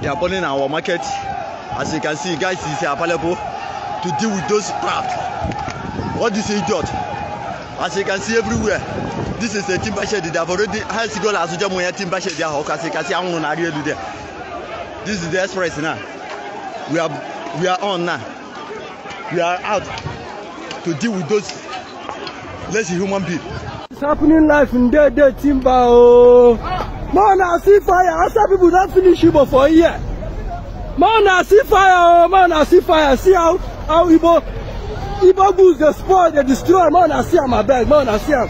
They are burning our market. As you can see, guys is available to deal with those traps. What is idiot. As you can see everywhere, this is a timber shed. They have already has gone as well as timber shed. As you can see, I'm on area there. This is the express now. We are we are on now. We are out to deal with those lazy human beings. It's happening life in dead, dead timber. Oh. Man, I see fire I saw people don finish igbo for here Man, I see fire o more na see fire see how how igbo igbo goods dey spoil they destroy Man, I see my abeg Man, I see him.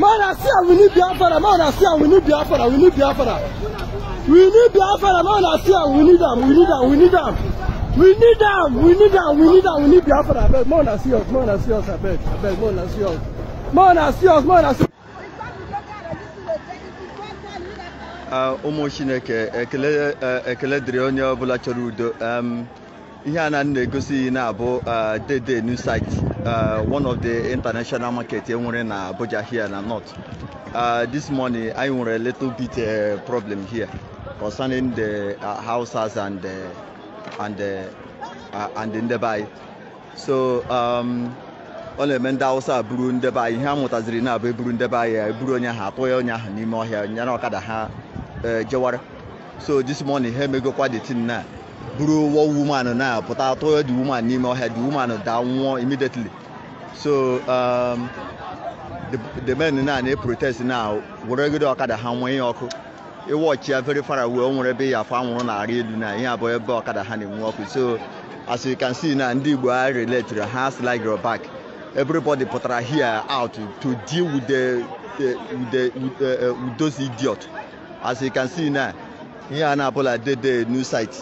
Man, I see him. we need biafra Man, I see him. we need biafra we need biafra we need biafra Man, I see him. we need them. we need them. we need them. we need them. we need them. we need them. we need biafra Man, I see us Man, I see us I beg. I beg. Man, I see us Man, I see us Man, I see Ah, ụmụ chineke ekele eh, dịrị onye ọbụla chọrọ udo ihe a na na-egosi na-abụ ah, dede new site ah, one of the international market enwere na Abuja here na north this morning anyị nwere a little bit eh, problem here concerning the houses and the eh, and the so ọ na-eme ndị awụsa buru ndebe ihe a mụtaziri na-abụ eburu ndebe anyị eburu onye ahụ atụ onye ahụ n'ime ọhịa nyere ọkada ha Eh, jewara so this morning ha emegokwa the tin na buru woman na pụta atọ the woman n'ime ọhịa the woman da nwụọ immediately so um, the, the men na na protest na weregide ọkada ha nwee ihe ọkụ ịwọchi ya very far away nwere ebe ya anwụrụ na-arị elu na ihe abụọ ebe ọkada ha na-enwe ọkụ so as you can see na ndị igbo a relatiri ha slide your back everybody pụtara here out to deal with the, with the, with, uh, with those idiot As you can see now, here in Anapola did the new site,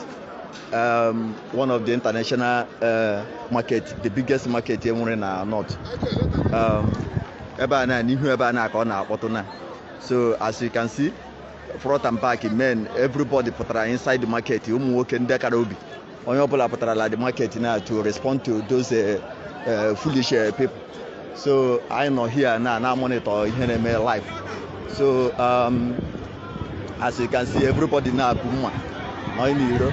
um, one of the international uh, market, the biggest market here in the uh, north. Um, so as you can see, front and back men, everybody pụtara inside the market, ụmụ nwoke ndị kara obi. Onye ọbụla pụtara the market now to respond to those uh, uh, foolish uh, people. So I know here now, now monitor here in my life. So um, as you can see everybody now akuma na in iro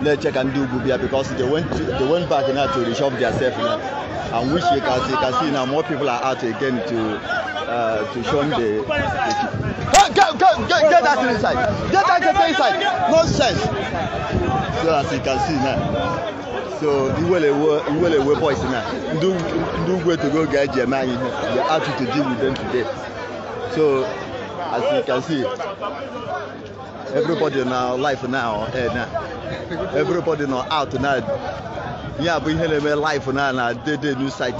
na-eche ka ndị ugwu bịa because they went to, they went back now to reshop theirself now and which you can see, you can see now more people are out again to uh, to show the, the get, get, get, that inside get that thing inside nonsense so as you can see now so iwelewe boys na ndị ugwu etogo to go get anyị ihe they are to deal with them today so as you can see everybody na life now eh, na everybody na out na ya bụ ihe na-eme life na na dede new site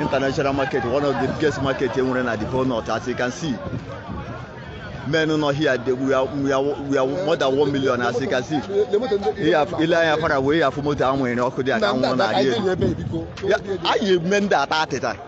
international market one of the biggest market e nwere na the whole north as you can see men nọ here they, we, are, we, are, we are more than one million as you can see ile anya fara wee ya afụ moto ahụ nwere ọkụ dị aka nwụrụ na adị elu anyị eme ndị ata atịta